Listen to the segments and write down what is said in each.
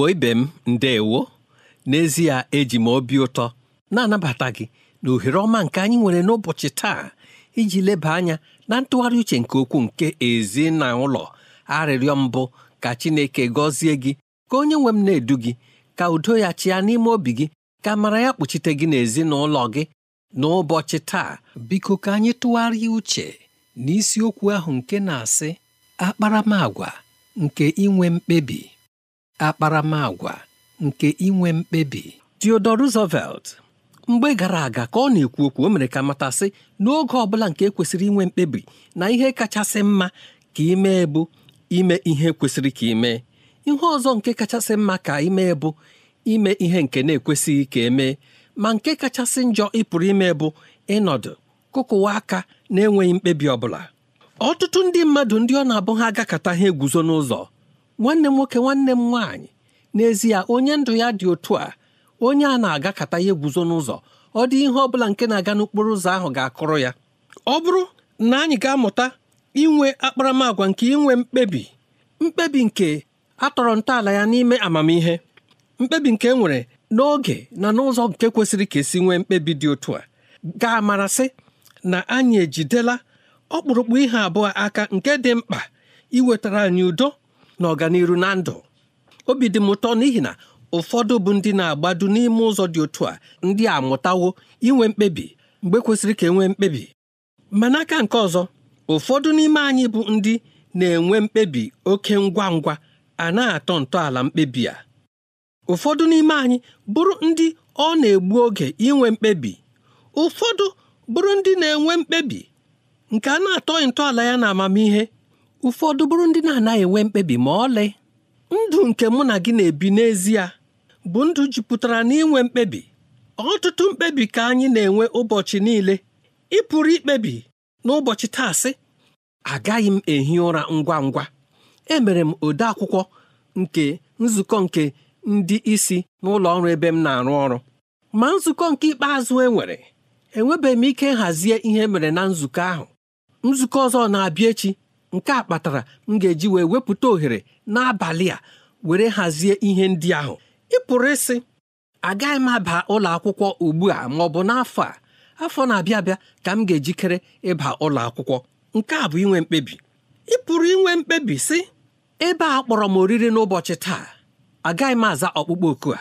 igbo ibe m ndeewo n'ezie eji m obi ụtọ na-anabata gị na ohere ọma nke anyị nwere n'ụbọchị taa iji leba anya na ntụgharị uche nke okwu nke ezi na ụlọ arịrịọ mbụ ka Chineke gọzie gị ka onye nwe m na-edu gị ka udo ya chịa n'ime obi gị ka mara ya kpuchite gị n'ezinụlọ gị n'ụbọchị taa biko ka anyị tụgharịa uche n'isiokwu ahụ nke na-asị akparamagwa nke inwe mkpebi akparamagwa nke inwe mkpebi Theodore Roosevelt mgbe gara aga ka ọ na-ekwu okwu o mere ka matasị n'oge ọ bụla nke e kwesịrị inwe mkpebi na ihe kachasị mma ka ime bụ ime ihe kwesịrị ka ime ihe ọzọ nke kachasị mma ka ime bụ ime ihe nke na-ekwesịghị ka emee ma nke kachasị njọ ịpụrụ ime bụ ịnọdụ kụkụwa aka na-enweghị mkpebi ọ bụla ọtụtụ ndị mmadụ ndị ọ na-abụ ha agakọta ha eguzo n'ụzọ nwanne m nwoke nwanne m nwaanyị n'ezie onye ndụ ya dị otu a onye a na-agakata ya guzo n'ụzọ ọ dị ihe ọ bụla nke na-aga n'okporo ụzọ ahụ ga-akụrụ ya ọ bụrụ na anyị ga-amụta inwe akparamagwa nke inwe mkpebi mkpebi nke atọrọ ntọala ya n'ime amamihe mkpebi nke e nwere n'oge na n'ụzọ nke kwesịrị ka esi nwee mkpebi dị otu a ga-amarasị na anyị ejidela ọkpụrụkpụ ihe abụọ aka nke dị mkpa iwetara anyị udo na ọganiru na ndụ obi dị m ụtọ n'ihi na ụfọdụ bụ ndị na-agbado n'ime ụzọ dị otu a ndị a mụtawo inwe mkpebi mgbe kwesịrị ka enwee mkpebi ma n'aka nke ọzọ ụfọdụ n'ime anyị bụ ndị na-enwe mkpebi oke ngwa ngwa a na-atọ ntọala mkpebi a ụfọdụ n'ime anyị bụrụ ndị ọ na-egbu oge inwe mkpebi ụfọdụ bụrụ ndị na-enwe mkpebi nke a na-atọ ntọala ya na amamihe ụfọdụ bụrụ ndị na-anaghị enwe mkpebi ma ọlị ndụ nke mụ na gị na-ebi n'ezie bụ ndụ jupụtara n'inwe mkpebi ọtụtụ mkpebi ka anyị na-enwe ụbọchị niile ị pụrụ ikpebi n'ụbọchị taa sị agaghị m ehi ụra ngwa ngwa emere m ode akwụkwọ nke nzukọ nke ndị isi n'ụlọ ọrụ ebe m na-arụ ọrụ ma nzukọ nke ikpeazụ enwere enwebeghị m ike nhazie ihe e mere na nzukọ ahụ nzukọ ọzọ na-abịa echi nke a kpatara m ga-eji wee wepụta ohere n'abalị a were hazie ihe ndị ahụ ị pụrụ ịsị agaghị m aba ụlọ akwụkwọ ugbu a ma ọ bụ n'afọ a afọ na-abịa abịa ka m ga-ejikere ịba ụlọ akwụkwọ nke a bụ inwe mkpebi ị pụrụ inwe mkpebi sị ebe a kpọrọ m oriri n'ụbọchị taa agaghị m aza ọkpụkpọ oku a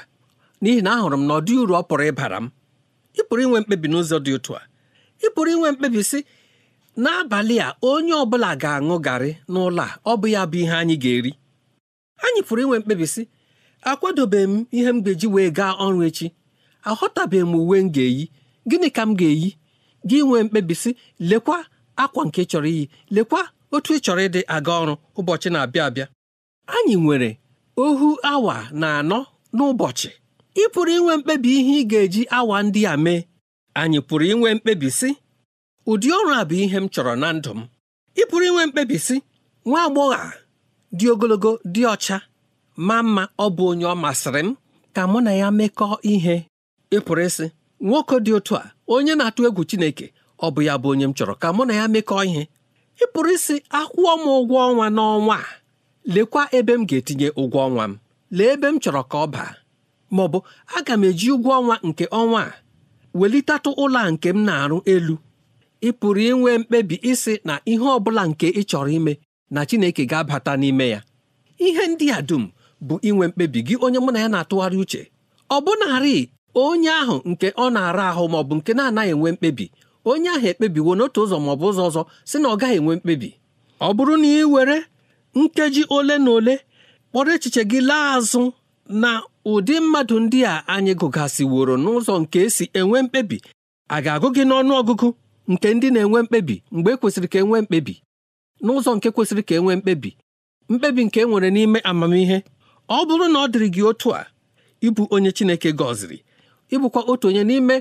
n'ihi na ahụrụ m na ọ dị uru ọ pụrụ ịbara m ị pụrụ inwe mkpebi n'ụzọ dị otu a ị pụrụ inwe mkpebi sị n'abalị a onye ọ bụla ga-aṅụ garị n'ụlọ a ọ bụ ya bụ ihe anyị ga-eri anyị pụrụ inwe mkpebi sị m ihe m ga-eji wee gaa ọrụ echi aghọtabeghị m uwe m ga-eyi gịnị ka m ga-eyi gị nwee mkpebi sị lekwa akwa nke chọrọ iyi lekwa otu ị chọrọ ịdị aga ọrụ ụbọchị na-abịa abịa anyị nwere ohu awa na anọ n'ụbọchị ị pụrụ inwe mkpebi ihe ị ga-eji awa ndị a mee anyị pụrụ inwe mkpebi ụdị ọrụ a bụ ihe m chọrọ na ndụ m ị pụrụ inwe mkpebi sị nwa agbọghọ a dị ogologo dị ọcha ma mma ọ bụ onye ọ masịrị m ka mụ na ya mekọọ ihe ị pụrụ ịsị nwoke dị otu a onye na-atụ egwu Chineke ọ bụ ya bụ onye m chọrọ ka mụ na ya mekọọ ihe ị pụrụ ịsị akwụọ m ụgwọ ọnwa n'ọnwa a lekwa ebe m ga-etinye ụgwọ ọnwa m lee ebe m chọrọ ka ọ baa ma ọ bụ aga m eji ụgwọ ọnwa nke ọnwa a welitatụ ụlọ a nke m na-arụ elu ị pụrụ inwe mkpebi isi na ihe ọ bụla nke ị chọrọ ime na Chineke ga-abata n'ime ya ihe ndị a dum bụ inwe mkpebi gị onye mụ na ya na-atụgharị uche ọ bụnarị onye ahụ nke ọ na-ara ahụ maọbụ nke na-anaghị enwe mkpebi onye ahụ ekpebiwo n'otu ụzọ maọbụ bụ ụzọ ọzọ si na ọ gaghị enwe mkpebi ọ bụrụ na ị were nkeji ole na ole kpọrọ echiche gị laa azụ na ụdị mmadụ ndị a anyị gụgasịworo n'ụzọ nke esi enwe mkpebi a ga-agụ gị n'ọnụ ọgụgụ nke ndị na-enwe mkpebi mgbe e kwesịrị ka e nwee mkpebi n'ụzọ nke kwesịrị ka e nwee mkpebi mkpebi nke e nwere n'ime amamihe ọ bụrụ na ọ dịrị gị otu a ịbụ onye Chineke gọziri ịbụkwa otu onye n'ime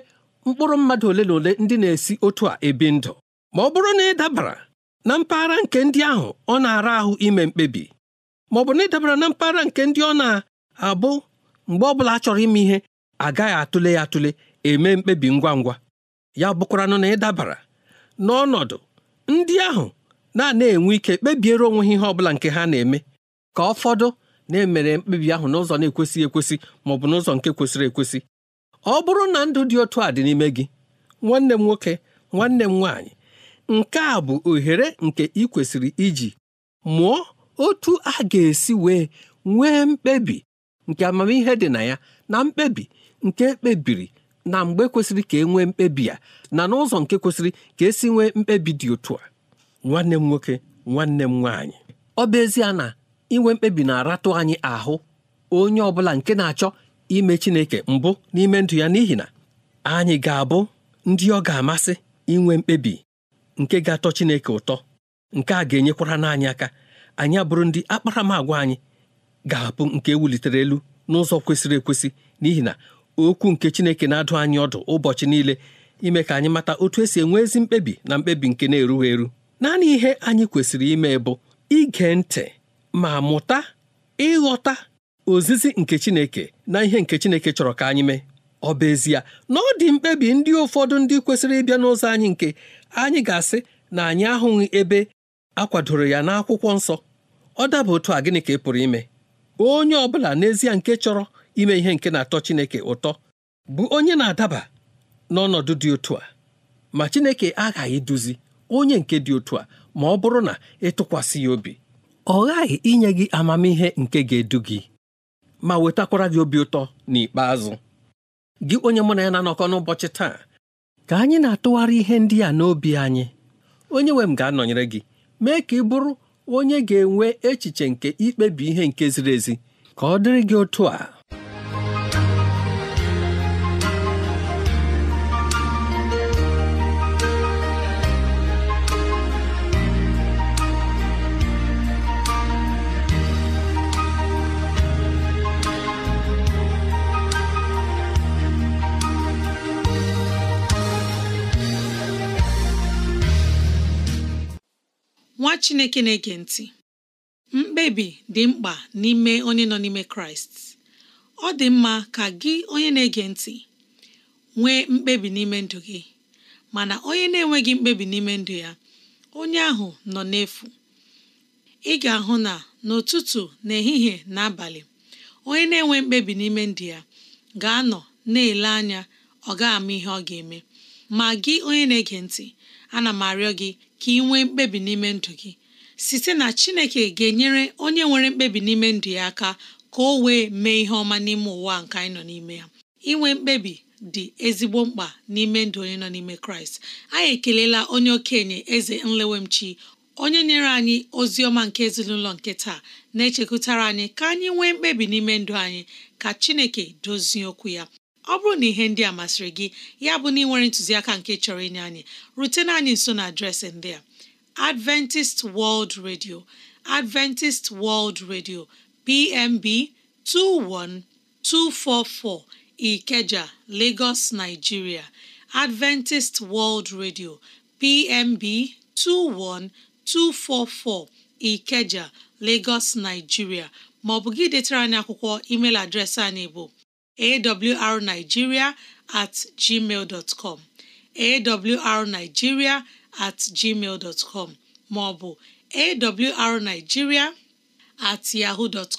mkpụrụ mmadụ ole na ole ndị na-esi otu a ebi ndụ ma ọ bụrụ na ị dabara na mpaghara nke ndị ahụ ọ na-ara ahụ ime mkpebi ma ọ bụ na ị dabara na mpaghara nke ndị ọ na-abụ mgbe ọ bụla a chọrọ ime ihe agaghị atụle ya atụle eme mkpebi ngwa ngwa ya bụkwaranụ na ị dabara n'ọnọdụ ndị ahụ na-ana enwe ike kpebiere onwe ha ihe ọ bụla nke ha na-eme ka ụfọdụ na-emere mkpebi ahụ n'ụzọ na-ekwesịghị ekwesị ma ọ bụ n'ụzọ nke kwesịrị ekwesị ọ bụrụ na ndụ dị otu a dị n'ime gị nwanne m nwoke nwanne m nwaanyị nke a bụ ohere nke ị kwesịrị iji mụọ otu a ga-esi wee nwee mkpebi nke amamihe dị na ya na mkpebi nke ekpebiri na mgbe kwesịrị ka e nwee mkpebi a na n'ụzọ nke kwesịrị ka esi nwee mkpebi dị otu a nwanne m nwoke nwanne m nwaanyị ọ bụ ezie na inwe mkpebi na-aratụ anyị ahụ onye ọ bụla nke na-achọ ime Chineke mbụ n'ime ndụ ya n'ihi na anyị ga-abụ ndị ọ ga-amasị inwe mkpebi nke ga-atọ Chineke ụtọ nke a ga-enyekwara n'anyị aka anyị abụrụ ndị akparamagwa anyị ga-abụ nke e wulitere elu n'ụzọ kwesịrị ekwesị n'ihi na okwu nke Chineke na-adụ anyị ọdụ ụbọchị niile ime ka anyị mata otu esi enwe ezi mkpebi na mkpebi nke na-erughị eru naanị ihe anyị kwesịrị ime bụ ige ntị ma mụta ịghọta ozizi nke Chineke na ihe nke Chineke chọrọ ka anyị mee ọ bụ ezie na ọ dị mkpebi ndị ụfọdụ ndị kwesịrị ịbịa n'ụzọ anyị nke anyị ga-asị na anyị ahụghị ebe a kwadoro ya n'akwụkwọ nsọ ọ daba otu a gịnị ka ị pụrụ ime onye ọ bụla n'ezie nke chọrọ ime ihe nke na-atọ Chineke ụtọ bụ onye na-adaba n'ọnọdụ dị otu a ma Chineke aghaghị duzi onye nke dị otu a ma ọ bụrụ na ịtụkwasị ya obi ọ ghaghị inye gị amamihe nke ga-edu gị ma wetakwara gị obi ụtọ n'ikpeazụ gị onye mụ na ya na-anọkọ n'ụbọchị taa ka anyị na-atụgharị ihe ndị a n'obi anyị onye nwe m ga-anọnyere gị mee ka ị bụrụ onye ga-enwe echiche nke ikpebi ihe nke ziri ezi ka ọ dịrị gị otu a Chineke na-ege ntị mkpebi dị mkpa n'ime onye nọ n'ime Kraịst ọ dị mma ka gị onye na-ege ntị nwee mkpebi n'ime ndụ gị mana onye na-enweghị mkpebi n'ime ndụ ya onye ahụ nọ n'efu ị ga-ahụ na n'ụtụtụ n'ehihie na abalị onye na-enwe mkpebi n'ime ndụ ya ga-anọ na-ele anya ọ ga-ama ihe ọ ga-eme ma gị onye na-ege ntị ana m arịọ gị ka ị nwee mkpebi n'ime ndụ gị site na chineke ga-enyere onye nwere mkpebi n'ime ndụ ya aka ka o wee mee ihe ọma n'ime ụwa nke anyị nọ n'ime ya inwe mkpebi dị ezigbo mkpa n'ime ndụ onye nọ n'ime kraịst anyị ekelela onye okenye eze nlewemchi onye nyere anyị ozi ọma nke ezinụlọ nke taa na-echekwutara anyị ka anyị nwee mkpebi n'ime ndụ anyị ka chineke dozie okwu ya ọ bụrụ na ihe ndị a masịrị gị ya bụ na ị nwere ntụziaka nke chọrọ inye anyị rutena anyị nso na adreesị ndị a Adventist World Radio Adventist World Radio PMB 21244 Ikeja, Lagos, Nigeria Adventist World Radio PMB 21244 Ikeja, Lagos, Nigeria maọbụ ọ bụ gị detara anyị akwụkwọ email adreesị anyị bụ awrnigeria at gmail dot com awrnigeria at gmail dot com maọbụ awrnigeria at yahoo dot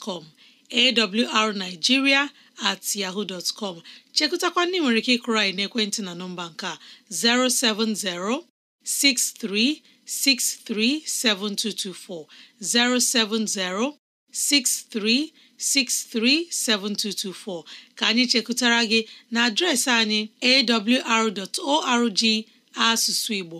awrnigeria at yahoo dot com chekụtakwa ndị nwere ike ịkụrụ anyị n'ekwentị na nọmba nke a 070 63 637224 070 63637224 ka anyị chekụtara gị na adreesị anyị awr.org asụsụ Igbo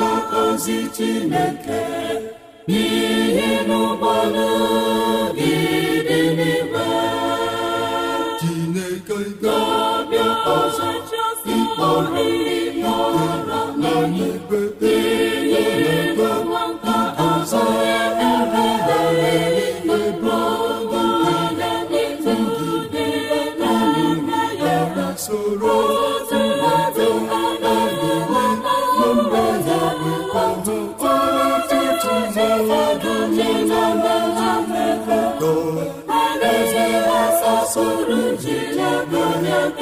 na ozi Chineke n'ihi n'ụgbọala gị dị n'ime Chineke ga-abịa ọzọ ịkpọrọ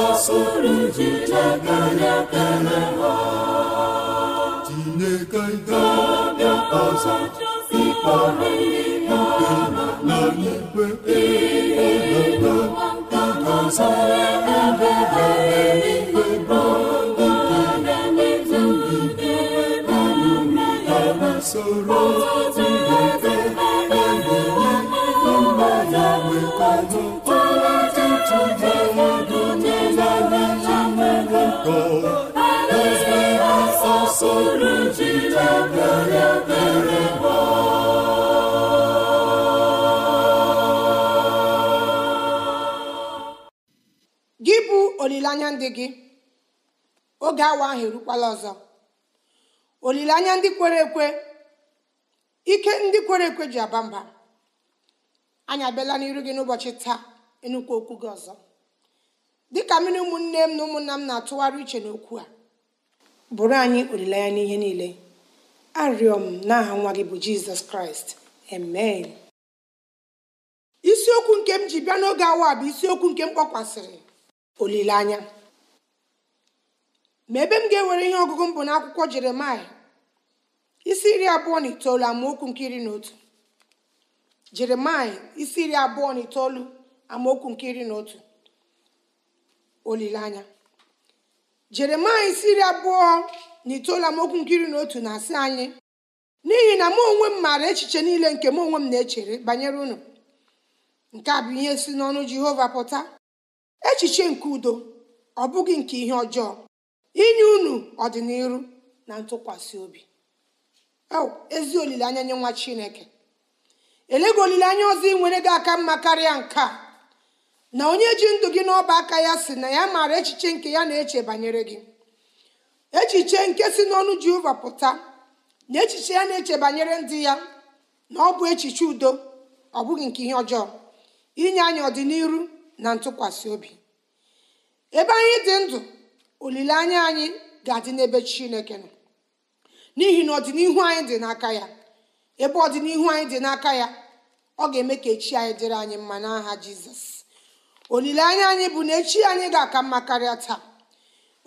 kpasoro ji na-ekele ha Chineke ga-abịa ọzọ ikpe ha na ikpe dị gị oge awa ahụ erukwala ọzọ olileanya ndị kwere ekwe ike ndị kwere ekwe ji aba mba anyị abịala n'iru gị n'ụbọchị taa ịnụkwu okwu gị ọzọ dịka mmiri ụmụnne m na ụmụnna m na-atụgharị uche n'okwu a bụrụ anyị olileanya n'ihe niile arịọ m n'aha nwa gị bụ jizọs kraịst amen isiokwu nke m ji bịa n'oge awa bụ isiokwu nke m kpọkwasịrị olileanya ma ebe m ga-ewere ihe ọgụgụ m bụ n'akwụkwọ jeremaya isi iri abụọ na itoolu amaokwu nke iri na otu jeremaya isi iri abụọ na itoolu amaokwu nke iri na otu olileanya jeremaya isi iri abụọ na itoolu amaokwu nke iri na otu na-asị anyị n'ihi na mụ onwe m maara echiche niile nke mụ onwe m na-echere banyere unu nke a bụ ihe si n'ọnụ jehova pụta echiche nke udo ọ bụghị nke ihe ọjọọ inye unu ọdịnihu na ntụkwasị obi ezi olileanya nye nwa chineke elego olileanya ọzọ ị nwere gị aka mma karịa nke a na onye ji ndụ gị n'ọba aka ya si na ya maara echiche nke ya na-eche banyere gị echiche nke si n'ọnụ jehova pụta na echiche ya na-eche banyere ndị ya na ọ bụ echiche udo ọ bụghị nke ihe ọjọọ inye anyị ọdịnihu na ntụkwasị obi ebe anyị dị ndụ olileanya anyị ga-adị n'ebe chineke nọ n'ihi na ọdịnihu anyị dị n'aka ya ebe ọdịnihu anyị dị n'aka ya ọ ga-eme ka echi anyị dịrị anyị mma n'aha jizọs olileanya anyị bụ na echi anyị ga-aka mma karịa taa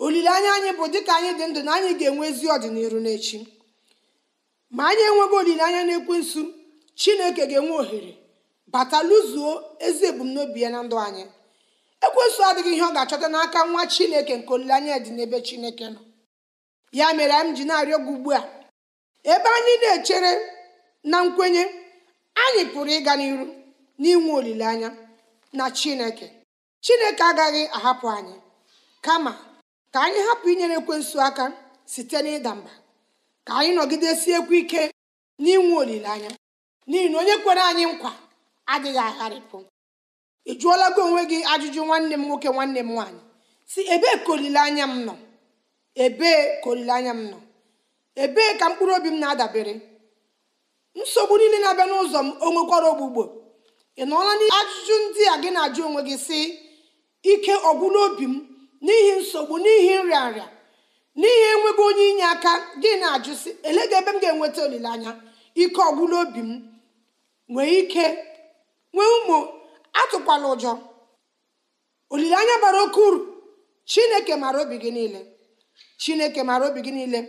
olileanya anyị bụ dịka anyị dị ndụ na anyị ga-enwe ezi ọdịnihu n'echi ma anyị enweghị olileanya n'ekwensu chineke ga-enwe ohere bata lụzuo ezi ebumnobi ya na ndụ anyị ekwensu adịghị ihe ọ ga-achọta n'aka nwa chineke nke olileanya dị n'ebe chineke nọ ya mere m ji na-arịọ gị ugbu a ebe anyị na-echere na nkwenye anyị pụrụ ịga n'iru n'inwe olileanya na chineke chineke agaghị ahapụ anyị kama ka anyị hapụ inyere ekwensu aka site n'ịda mba ka anyị nọgidesiekwu ike n'inwe olileanya n'ihi na onye kwere anyị nkwa adịghị agharịpụ ị jụọla gị onwe gị ajụjụ nwanne m nwoke nwanne m nwaanyị si ebee ka olileanya m nọ ebee ka olileanya m nọ ebee ka mkpụrụ obi m na-adabere nsogbu niile na-abịa n'ụzọ m o nwekwara ogbugbo ị nọọla ajụjụ ndị a gị na-ajụ onwe gị si ike ọgwụla obi m n'ihi nsogbu n'ihi nrịa n'ihi enweghị onye inye aka gị na-ajụ si elega ebe m ga-enweta olileanya ike ọgwụla obi m nwee ike nwee ụmụ atụkwala ụjọ olileanya bara oke uru chineke mara obi gị niile chineke mara obi gị niile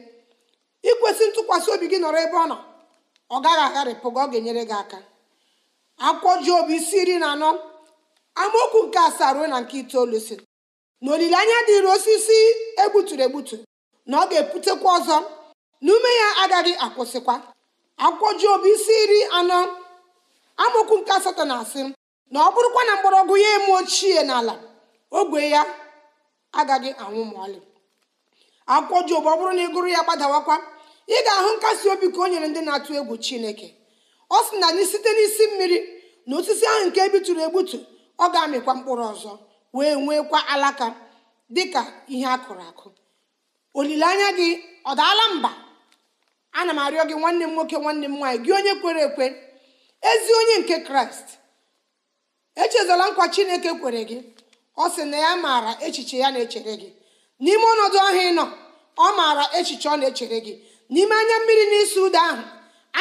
ikwesị ntụkwasị obi gị nọrọ ebe ọ nọ ọ gaghị agharịpụ gị ọ ga-enyere gị aka akwụkwọ Job isi iri na anọ amaokwu nke asaa ruo na nke itoolu si na olileanya dịịrị osisi egbuturu egbutu na ọ ga-eputekwa ọzọ na ume ya agaghị akwụsịkwa akwụkwọ obi isi iri anọ amaokwu nke asatọ na asị na ọ bụrụkwa na mgbọrọgwụ ya eme ochie n'ala ogwe ya agaghị anwụ ma ọlị akwụkwọ Job ọ bụrụ na ị gụrụ ya gbadawakwa ị ga-ahụ nkasi obi ka o nyere ndị na-atụ egwu Chineke ọ sị na anyị site n'isi mmiri na osisi ahụ nke ebitụrụ egbutu ọ ga-amịkwa mkpụrụ ọzọ wee nwekwa alaka dị ka ihe a kụrụ akụ olileanya gị ọ daala mba ana m arịọ gị nwanne m nwoke nwanne m nwaanyị gị onye kwere ekwe ezi onye nke Kraịst echezọla nkwa chineke kwere gị ọ sị na ya maara echiche ya na-echere gị n'ime ọnọdụ ọhịa ị nọ ọ maara echiche ọ na-echere gị n'ime anya mmiri n'isi ụda ahụ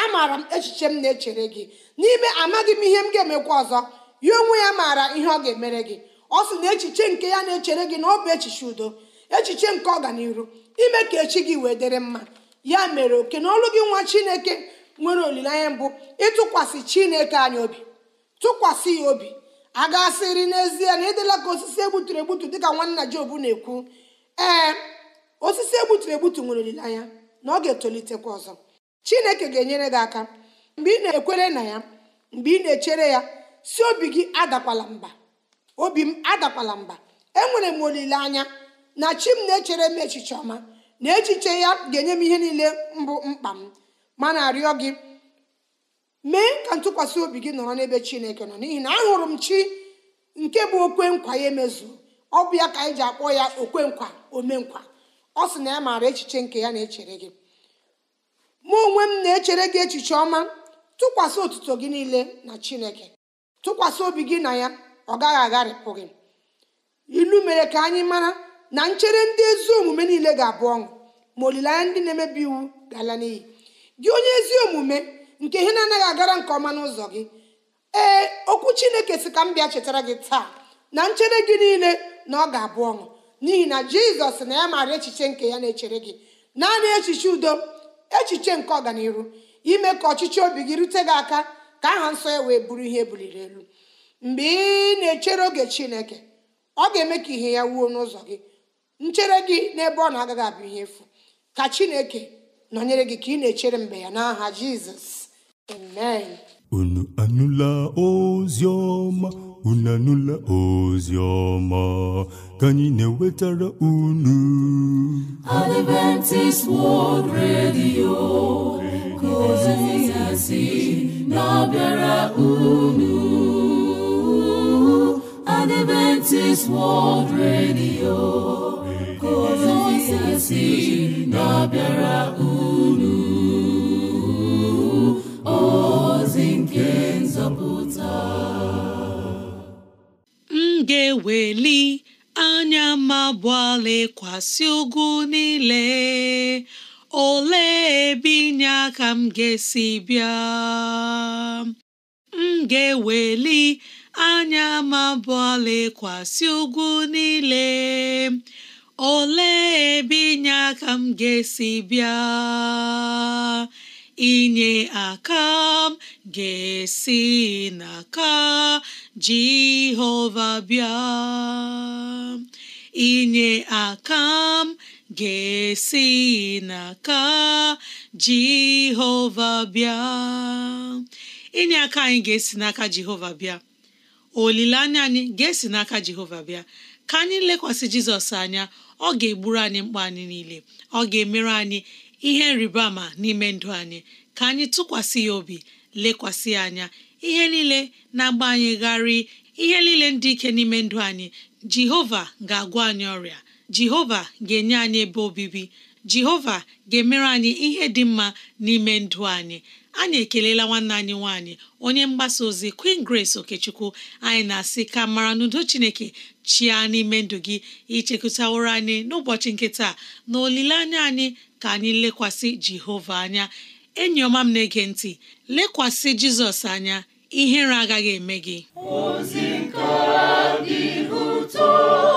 amaara m echiche m na-echere gị n'ime amaghị m ihe m ga-emekwa ọzọ ya onwe ya maara ihe ọ ga-emere gị ọ sị na echiche nke ya na-echere gị na ọ bụ echiche udo echiche nke ọganiru ime ka echi gị wee dịrị mma ya mere oke na ọlụ gị nwa chineke nwere olileanya mbụ ịtụkwasị chineke anyị obi tụkwasị ya obi a gasịrị n'ezie na ịdịla ka osisi egbuturu egbutu dịka nwanna Job na-ekwu ee osisi egbuturu egbutu nwere olileanya na ọ ga-etolitekwa ọzọ Chineke ga-enyere gị aka mgbe ị na-ekwere na ya mgbe ị na-echere ya si obi gị adakwala mba obi m adakwala mba enwere m olileanya na chi m na-echere m echiche ọma na echiche ya ga-enye m ihe niile mbụ mkpa m ma na-arịọ gị ka ntụkwasị obi gị nọrọ n'ebe chineke nọ n'ihi na ahụrụ m chi nke bụ okwe nkwa ya emezu ọ bụ ya ka anyị ji akpọ ya okwe nkwa omenkwa ọ sị na ya maara echiche nke ya na-echere gị mụ onwe m na-echere gị echiche ọma tụkwasị otuto gị niile na chineke tụkwasị obi gị na ya ọ gaghị agharịpụ gị ilu mere ka anyị mara na nchere ndị ezi omume niile ga-abụ ọṅụ ma olileanya ndị na-emebi iwu ga-ala n'iyi gị onye ezi omume nke ihe na-anaghị agara nke ọma n'ụzọ gị ee okwu chineke si ka m bịa chetara gị taa na nchere gị niile na ọ ga-abụ ọṅụ n'ihi na jizọs na ya maara echiche nke ya na-echere gị naanị echiche udo echiche nke ọganihu ime ka ọchịchị obi gị rute gị aka ka aha nsọ ya wee bụrụ ihe buliri elu mgbe ị na-echere oge chineke ọ ga-eme ka ihe ya wuo n'ụzọ gị nchere gị n'ebe ọ na-agaghị abụ ihe efu ka chineke nọnyere gị ka ị na-echere mgbe ya n'aha jizọs Amen. Unu anụla ozi ọma, unu anụla ozi ọma ka anyị na-ewetara unu. Adventist World Radio ka ozi na-abịara unu. Adventist World Radio ka ozi na-abịara unu. ozi nke nzọpụta m ga-eweli anya mabụọ lekwasị ugwu niile ole ebe inye aka m ga-esi bịa m ga-eweli anya mabụọ lekwasị ugwu niile ole ebe inye aka m ga-esi bịa inye aka m ga-esi n'aka Jehova bịa inye aka m ga-esi n'aka Jehova bịa inye aka anyị ga-esi n'aka Jehova bịa olileanya anyị ga-esi n'aka Jehova bịa ka anyị lekwasị Jizọs anya ọ ga-egburu anyị mkpa anyị niile ọ ga-emere anyị ihe nrịba n'ime ndụ anyị ka anyị tụkwasị ya obi lekwasị ya anya ihe niile na-agba anyị gharị ihe niile ndị ike n'ime ndụ anyị jehova ga-agwọ anyị ọrịa jehova ga-enye anyị ebe obibi jehova ga-emere anyị ihe dị mma n'ime ndụ anyị anyị ekelela nwanne anyị nwanyị onye mgbasa ozi Queen Grace Okechukwu anyị na-asị ka mara n'udo Chineke chia n'ime ndụ gị ichekụtaworo anyị n'ụbọchị nkịta na olileanya anyị ka anyị lekwasị Jehova anya enyi ọma m na-ege ntị lekwasị Jizọs anya ihere agaghị eme gị ozi nke dị ụtọ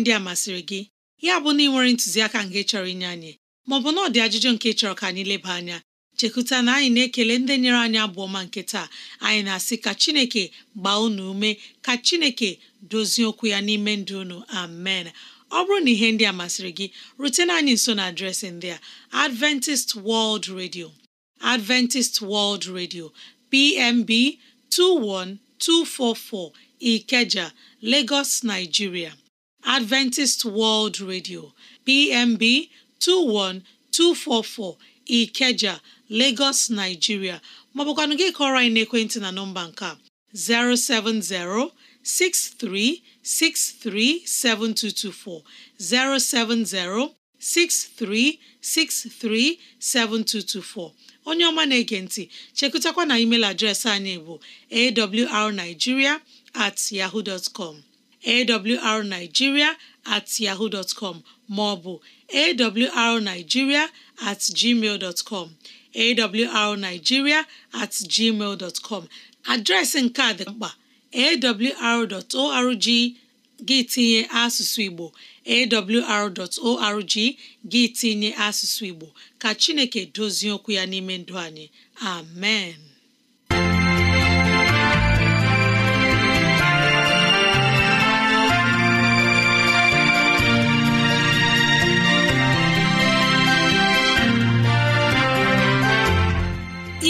ndị a masịrị gị ya bụ na ị nwere ntụziaka nke chọrọ inye anyị maọbụ na ọ dị ajụjụ nke chọrọ ka anyị leba anya chekuta na anyị na-ekele ndị nyere anyị abụọ ma nke taa anyị na-asị ka Chineke gbaa unu ume ka Chineke dozie okwu ya n'ime ndụ unu amen ọ bụrụ na ihe ndị a masịrị gị rutena anyị nso na adreesị ndị a Adventist World Radio Adventist World Radio PMB 21244 Ikeja, Lagos, Nigeria Adventist World Radio PMB 21244 Ikeja Lagos Nigeria maọbụkwanụ gị kọrọ anyị n'ekwentị na nọmba nke a 07063637224 07063637224 onye ọma na-ege ntị chekụtakwa na email adreesị anyị bụ awrnigeria at yahoo com awrnigeria at yahoo bụ maọbụ awrnigeria at gmail com at adreesị nke a dị mkpa awr.org gị tinye asụsụ Igbo awr.org gị asụsụ Igbo ka Chineke dozie okwu ya n'ime ndụ anyị amen